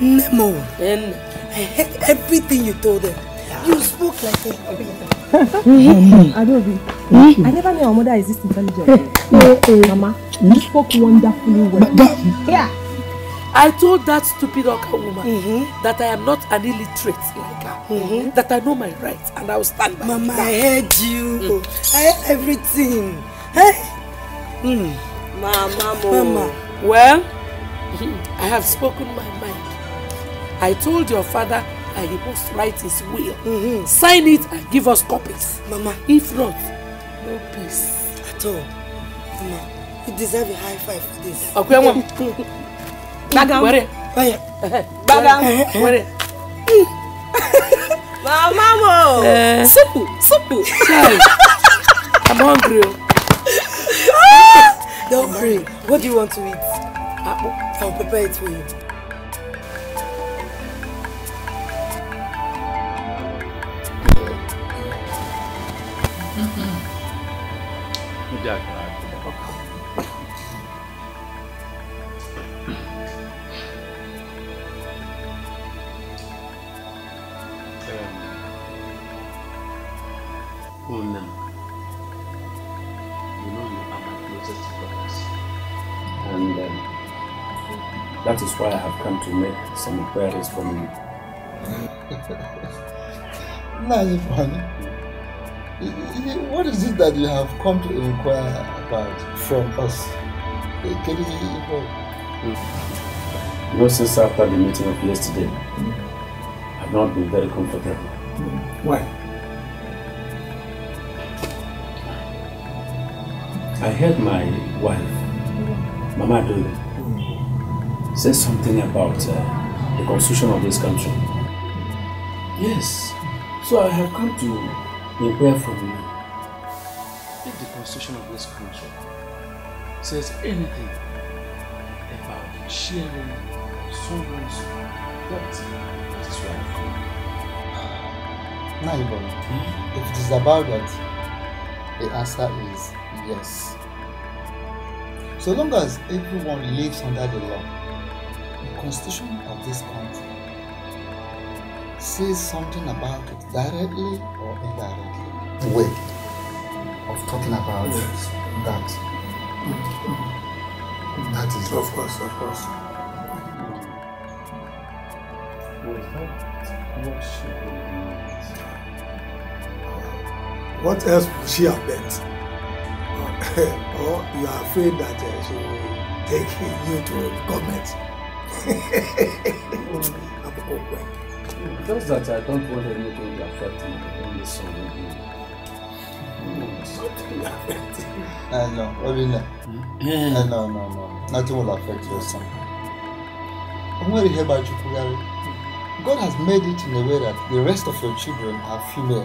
Nemo, I heard everything you told them. You spoke like a Adobe. Hmm? I never knew our mother is this intelligent. No, eh, eh, eh. Mama, you spoke wonderfully well. Yeah. I told that stupid Oka woman mm -hmm. that I am not an illiterate like her, mm -hmm. that I know my rights and I will stand by Mama, that. I heard you. Mm. I heard everything. Hey. Mm. Mama, Mama. Well, I have spoken my mind. I told your father that he must write his will. Mm-hmm. Sign it and give us copies. Mama. If not, no peace. At all. Mama, you deserve a high five for this. Okay, mama. Bagam. Where? Bagam. Where? Mama, Mom. Supu, supu. Sorry. I'm hungry. Oh. Ah! Don't worry. What do you want to eat? I'll prepare it for you. Mm -hmm. That is why I have come to make some inquiries from you. Naifan, what is it that you have come to inquire about from us? Can you You know, since after the meeting of yesterday, mm. I've not been very comfortable. Mm. Why? I heard my wife, Mama Dole, Says something about uh, the constitution of this country. Yes, so I have come to inquire from you. If the constitution of this country says anything about sharing someone's property with his wife, Naibon, hmm? if it is about that, the answer is yes. So long as everyone lives under the law, constitution of this country says something about it directly or indirectly. Way of talking about yes. that. That is of course, of course. Uh, what else would she have meant? Uh, or you are afraid that uh, she will take you to government? i Just that I don't want anything to affect me in song. Something will affect you. Uh, no, Obina. Hmm? Uh, no, no, no. Nothing will affect your son. I'm very happy about you, Kugari. God has made it in a way that the rest of your children are female.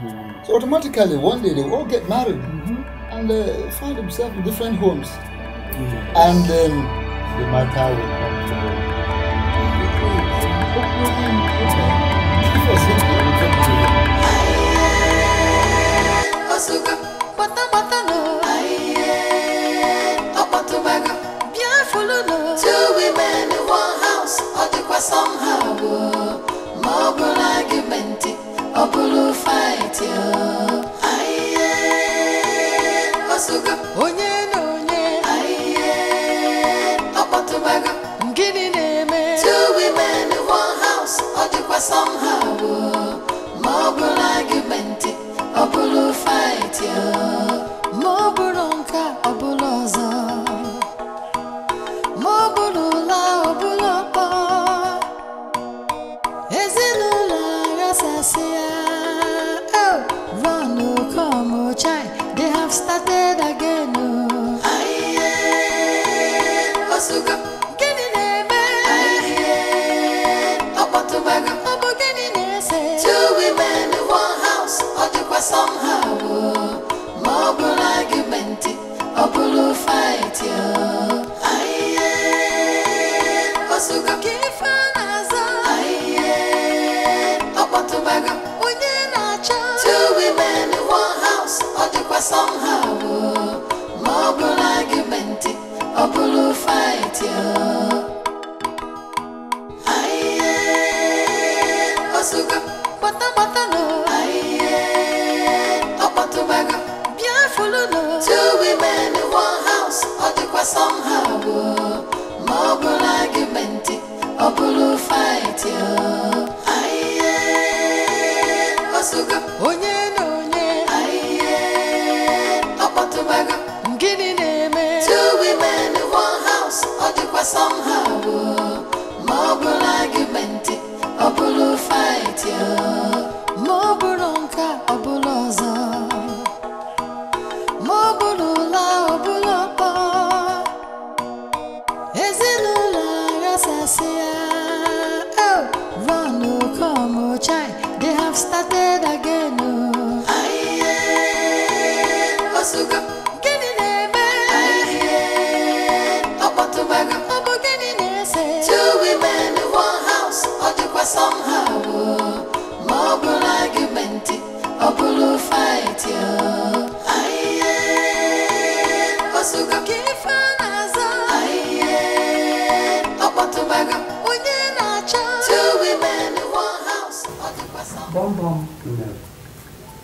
Mm. So automatically, one day they will all get married mm -hmm. and uh, find themselves in different homes. And then um, the matter will come. Açúcar, bota, bota no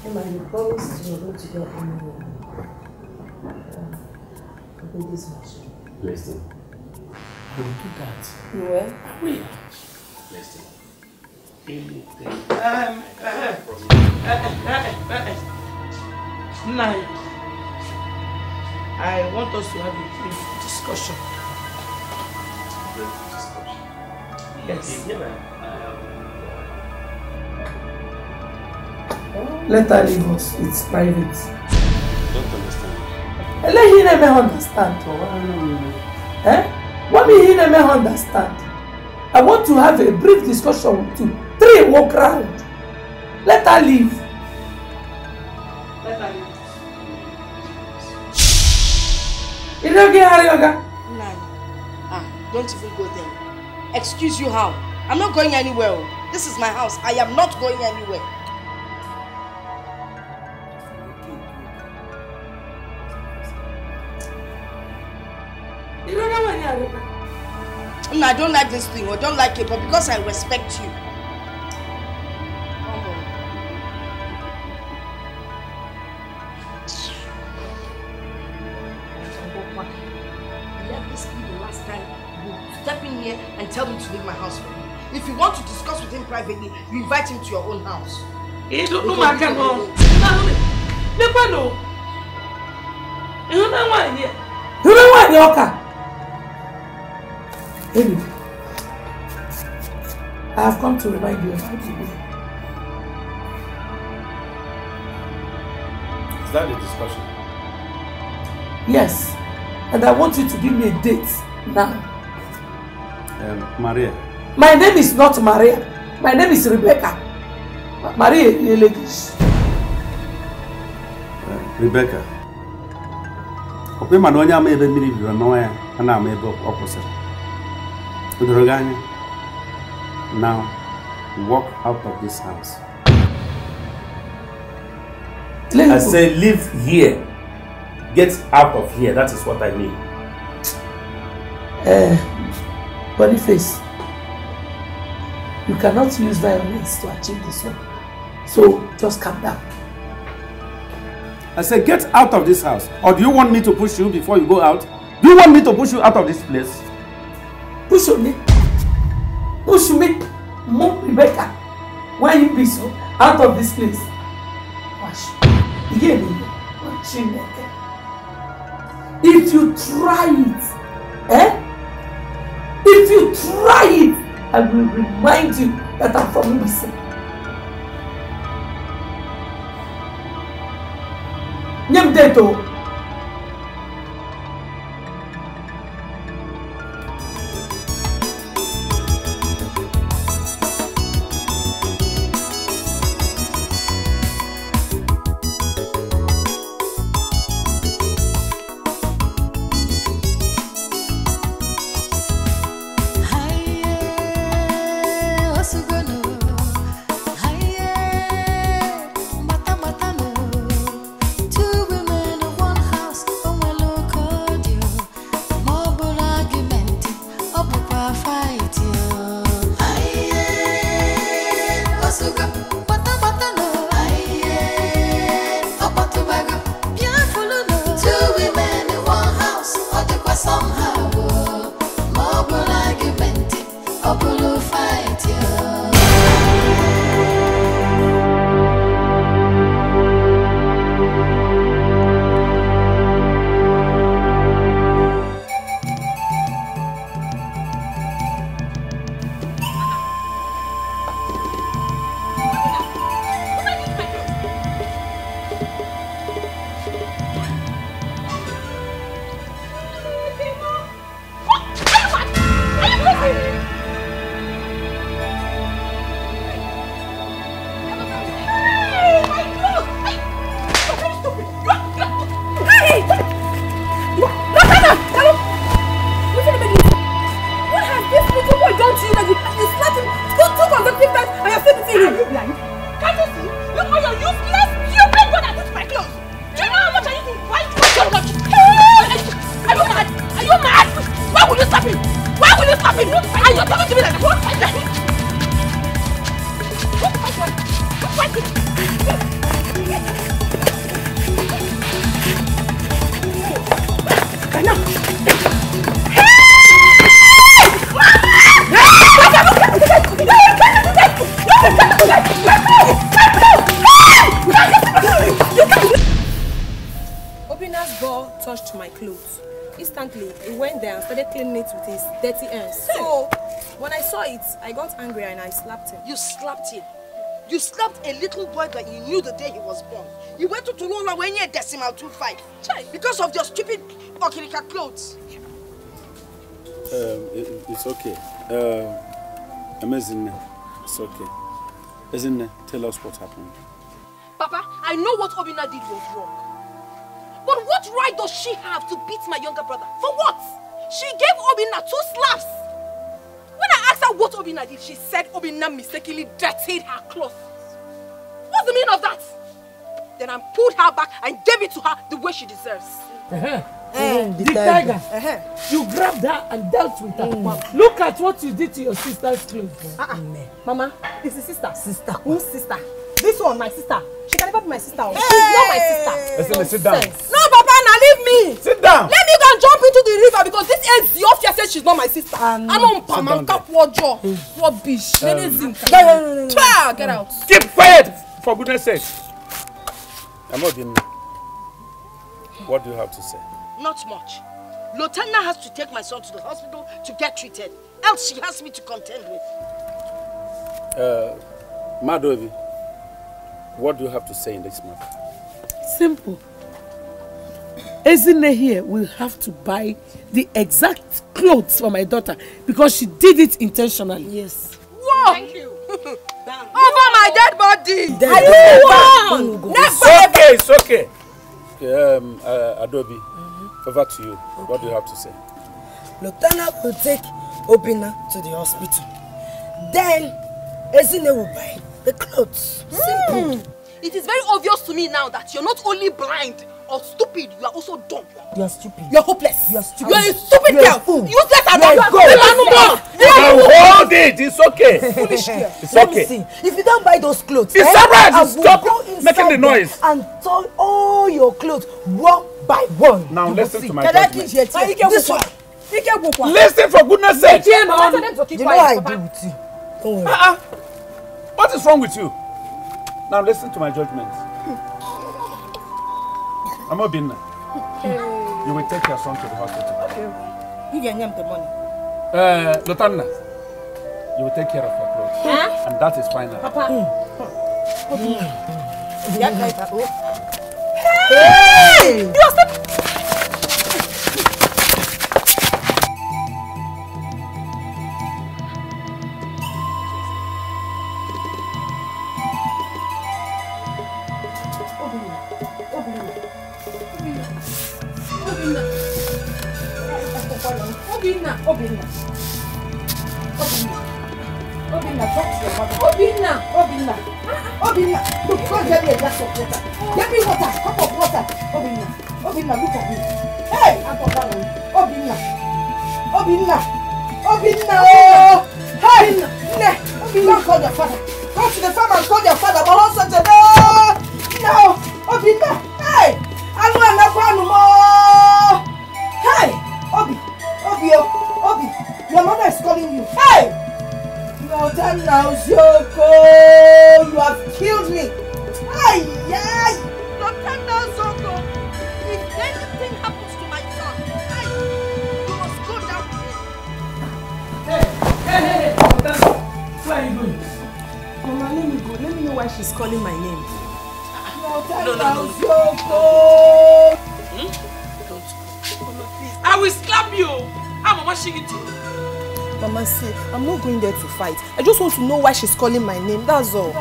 Emma, you promised you were going to get me uh, a baby's much. Listen. Don't do that. You will? I will. Listen. Anything. Um, uh, uh, uh, Nine. I want us to have a brief discussion. Brief discussion? Yes. Okay, yeah, Let her leave us. It's private. don't understand. Let him never understand. Oh. Eh? What me he never understand? I want to have a brief discussion with you. Three walk round. Let her leave. Let her leave. Is don't get her, Yoga? Ah, don't even go there. Excuse you how? I'm not going anywhere. Oh. This is my house. I am not going anywhere. ìrora wà ní àrùn. No, I don't like this thing I don't like it, but because I respect you. Come on. Stepping here and tell me to leave my house you. If you want to discuss with him privately, you invite him to your own house. He don't know my gun. No, never know. You don't know why here. You don't know why here, Oka. Baby, I have come to remind you of how to be. Is that a discussion? Yes, and I want you to give me a date now. Um, Maria. My name is not Maria. My name is Rebecca. Maria you ladies. Uh, Rebecca. Ọ bụ ịma na onye ama ebe mmiri biri n'ọnwa ya, a na-ama ebe ọ Kudurogani, now walk out of this house. Let I say leave here. Get out of here. That is what I mean. Uh, body face. You cannot use violence to achieve this one. So just calm down. I said, get out of this house. Or do you want me to push you before you go out? Do you want me to push you out of this place? Ushumi, Ushumi, move Rebecca. Why you be so out of this place? Wash. Again, Chineke. If you try it, eh? If you try it, I will remind you that I'm from Ibise. Nyem deto. dirty ends. So when I saw it, I got angry and I slapped him. You slapped him? You slapped a little boy that you knew the day he was born. You went to Tulula when you decimal 25. Because of your stupid Okirika clothes. Um, it, it's okay. Um, amazing. It's okay. Isn't it? Tell us what happened. Papa, I know what Obina did was wrong. But what right does she have to beat my younger brother? For what? She gave Obinna two slaps. When I asked her what Obinna did, she said Obinna mistakenly dirtied her clothes. What's the meaning of that? Then I pulled her back and gave it to her the way she deserves. Uh -huh. Uh, eh, mm, the, tiger. Uh -huh. You grabbed her and dealt with her. Mm. look at what you did to your sister's clothes. Uh -uh. Mm. Mama, it's the sister. Sister. Whose sister? This one, my sister. She can never be my sister. Hey. She's not my sister. Listen, sit down. No, Papa, now leave me. Sit down. Let me go. and jump into the river because this Eziofia Says she's not my sister. Um, I am on pam, I'm cap bitch. Rubbish. Um, get out. Get out. Keep quiet, for goodness sake. I'm not being What do you have to say? Not much. Lotana has to take my son to the hospital to get treated. Else she has me to contend with. Uh, Madovi, what do you have to say in this matter? Simple. Ezine here will have to buy the exact clothes for my daughter because she did it intentionally. Yes. Whoa! Thank you. Over oh, my dead body! Dead I one! Never! Okay, it's okay. okay um, uh, Adobe, mm -hmm. over to you. Okay. What do you have to say? Lotana will take Obina to the hospital. Then, Ezine will buy the clothes. Mm. Simple. It is very obvious to me now that you're not only blind, are stupid, you are also dumb. You are stupid. You are hopeless. You are stupid. You are a stupid girl. You Useless and dumb. You are go. You are you can hold it. It's okay. Foolish girl. It's okay. If you don't buy those clothes, it's eh, alright. Stop making the noise and turn all your clothes one by one. Now listen to my judgment. This one. Listen for goodness sake. You know I do with you. Oh. Uh -uh. What is wrong with you? Now listen to my judgment. i Mama Binna, hey. you will take your son to the hospital. Okay. You can name the money. Uh, Lotanna, you will take care of your clothes. Huh? And that is final. Papa. Mm. Mm. Mm. Hey! You are Obinna. Obinna. Obinna. Look, go and get me a glass of water. Get me water. Cup of water. Obinna. Obinna, look at me. Hey, I'm from that one. Obinna. Obinna. Obinna. Oh. Hey. Ne. Obinna. Go call your father. Go to the farm and call your father. But also today. Oh! No. Obinna. know why she's calling my name. That's all.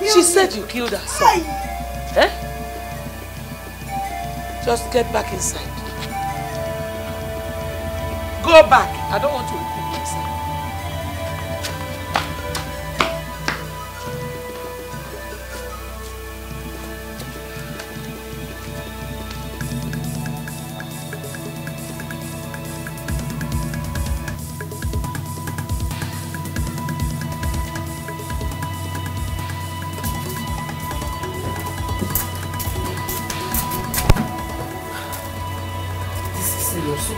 You she said you killed her son. Eh? Just get back inside. Go back. so.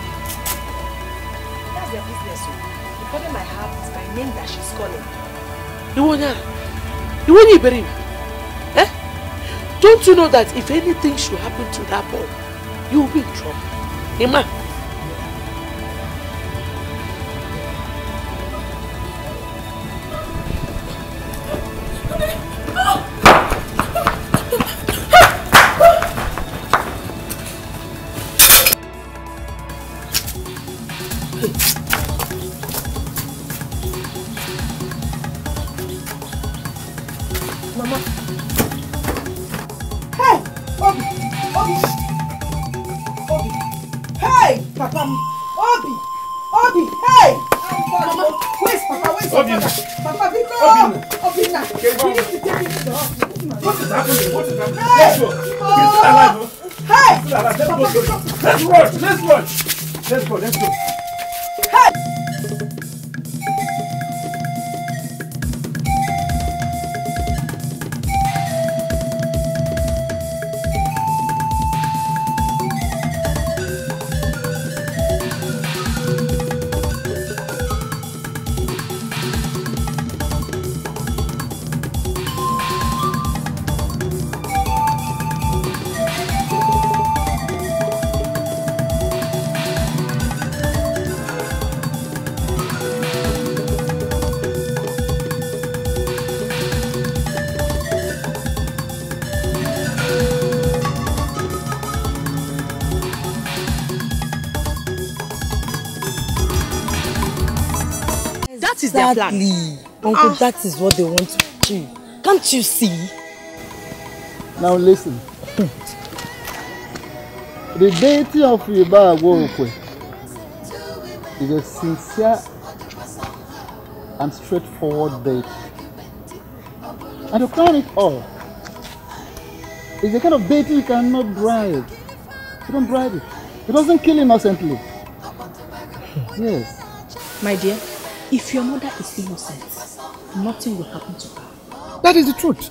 That's their business, so. The problem I have is my name that she's calling. Ìwọ ni, ìwọ ni ìbẹ̀rẹ̀ mi. Eh? Don't you know that if anything should happen to that boy, you will be in trouble? Emma. Exactly. Uncle, ah. that is what they want to do. Can't you see? Now listen. the deity of Yoruba Agbookwe is a sincere and straightforward deity. And to crown it all, it's the kind of deity you cannot bribe. You don't bribe it. It doesn't kill innocently. yes. My dear, If your mother is innocent, nothing will happen to her. That is the truth.